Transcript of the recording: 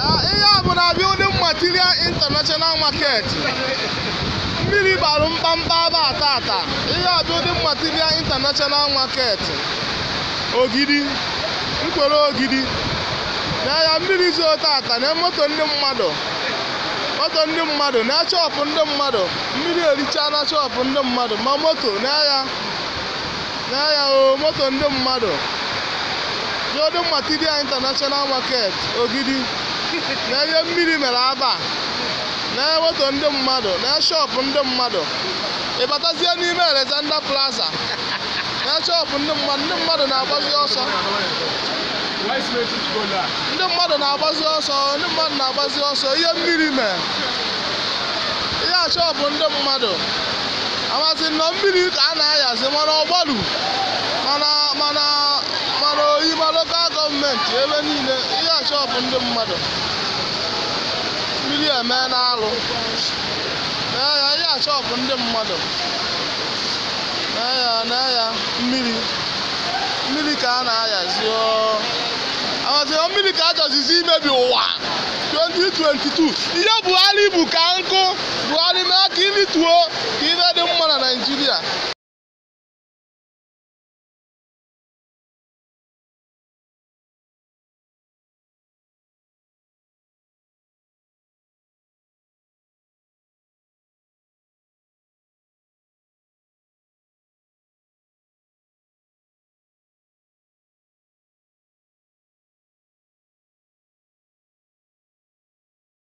ihe a bụ na abịa building material international market mmiri bara mkpamkpa ba tata ihe a building material international market ogidi mkpere ogidi na ya mmiri zoo tata na moto ndị mmadụ moto ndị mmadụ na chọpụ ndị mmadụ mmiri ericha na chọpụ ndị mmadụ ma moto n'ahịa n'ahịa o moto ndị mmadụ building material international market ogidi n'ebe mmiri mere aba na-eweto ndị mmadụ na shọpụ ndị mmadụ ịbatazie n'ime Alexander Plaza na shọpụ ndị mmadụ ndị mmadụ na-agbazi ọsọ ndị mmadụ na-agbazi ọsọ ndị mmadụ na-agbazi ọsọ ihe mmiri mere ihe achọpụ ndị mmadụ amasị nọ mmiri ka a na-ayazi mana ọgbalu mana oyi ma lokal gọọmenti ebe niile shọpụ ndị mmadụ mmiri eme n'alụ mee ya ya shọpụ ndị mmadụ na ya mee ya mmiri mmiri ka a na-ayazi aghọzio mmiri ka ajọzizi imebi ụwa 2022 ihe Buhari bụ ka nkụ Buhari mee ka ilituo ka ibe